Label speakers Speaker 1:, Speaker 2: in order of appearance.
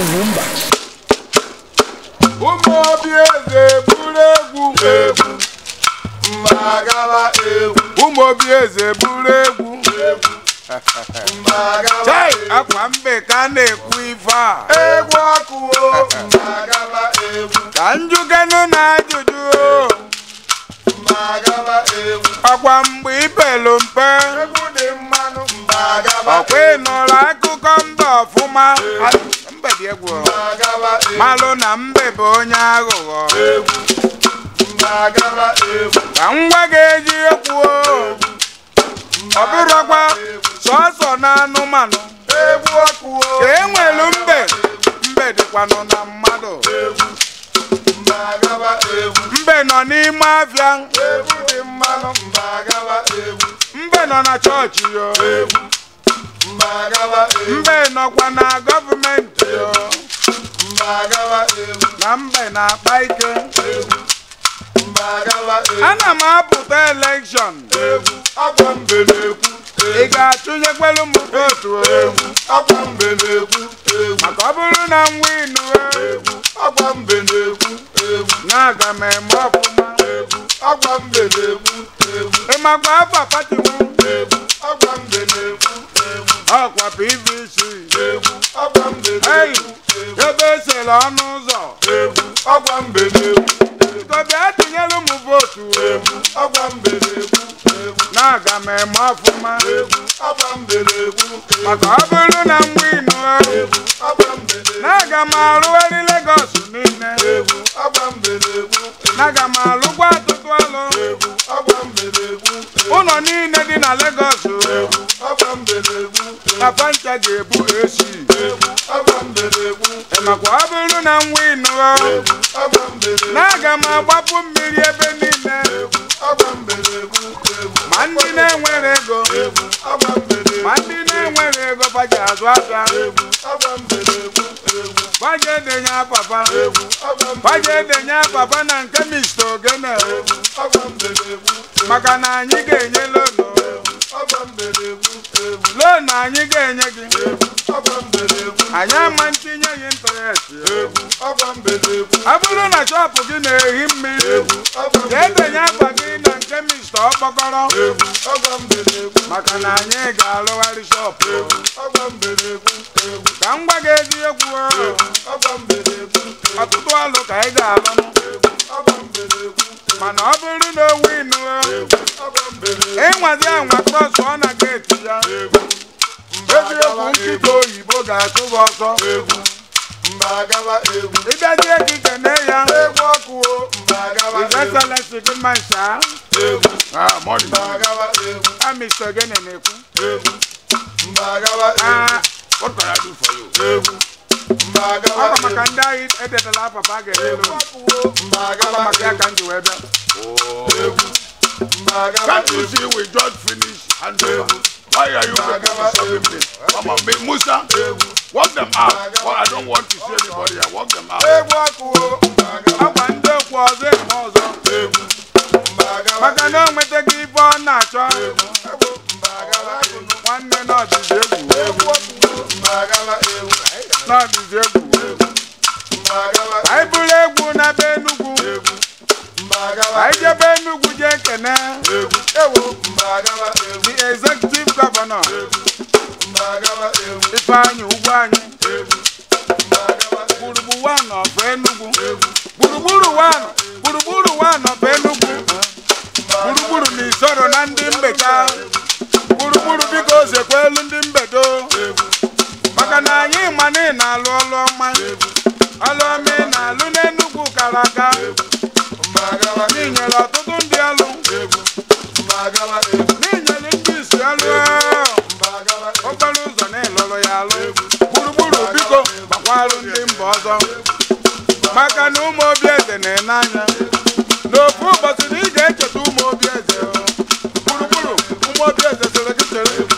Speaker 1: Ụmụ obi eze bụrụ egwu egwu mbagaba egwu. Ụmụ obi eze bụrụ egwu egwu egwu. akwa mbe ka na-ekwu ife a. Egwu ọkụ o egwu. Ka njugenu na ajụjụ o. Mbagaba egwu. mgbe mpe. Egwu dị mmanụ mbagaba egwu. ịnụrụ akụkọ mba ọfụma. egwu malụ na mbe bụ onye aghụghọ ka ngwa ga-eji ekwu ọ bụrụkwa sọsọ na anụmanụ ka enwelu mbe mbe dịkwanụ na mmadụ mbe nọ n'ime afịa mbe nọ na chọọchị yo E. mbe nọkwa na gọọmenti e. na mbe na-akpa ike e. ana m apụta elekshọn ị ga-atụnyekwelu m votu maka ọ bụrụ na m winu na-aga m eme ọfụma ịmakwa afọ pati akwa pvc egwu ebe esere ọnụ ụzọ Ntobi atụnyere ụmụ egwu vootu egwu na-aga m eme ọfụma egwu maka ọ bụrụ na m winu na-aga m Lagos niile egwu na-aga m ọrụ ụlọ niile dị na legos na ncha ga-ebu echi makwa ọ bụrụ na nwa ịnụọ na aga m agbapụ mmiri ebe niile ma ndị na-enwere ego ma ndị na-enwere ego baji azụ aka baji edenye papa baji edenye papa na nke mr ogene maka na anyị ga-enye ma anyị ga-enye gị anyị ama ntinye gị ịntarestị ọ bụrụ na chọpụ gị na-ehi mmiri jee denye akpa gị na nke mista ọkpọkọrọ maka na anyị ga-alụgharị shọpụ ka m gwa gị eziokwu ọtụtụ alụ ka ị ga-alụ mana ọ bụrụ na owu ịnụrụ ịnwazi anwa krọs na egwu nkịta oyibo ga-atụba ọsọ egwu gị kene ya egwu ọkụ ịbesala si gị mma ncha amiso gị na-ekwu ọ bụ maka ndị anyị edetala papa ga-ere maka ya ka m wee bịa That is it, we just And Aya Yuga Mama me Come on, Musa Walk them out Well I don't want to see anybody I walk them out maka na o nwetaghị ife ọ na-achọ nwanne na ọdịzi egwu n'ọdịzi egwu egwu the executive governor Ifeanyi Ugwu egwu gburugburu one of Enugu egwu gburugburu na isoro na ndị mbeka gburugburu dị ka biko zekwelu ndị mbedo maka na anyị ma na na-alụ ọlụ ọma ọlụ ọma ị na-alụ n'Enugu kara aka ọzọ maka na ụmụ obi eze na enanya n'ofu ụbọchị na ị ga-echeta ụmụ obi eze gburugburu ụmụ obi eze chere gị chere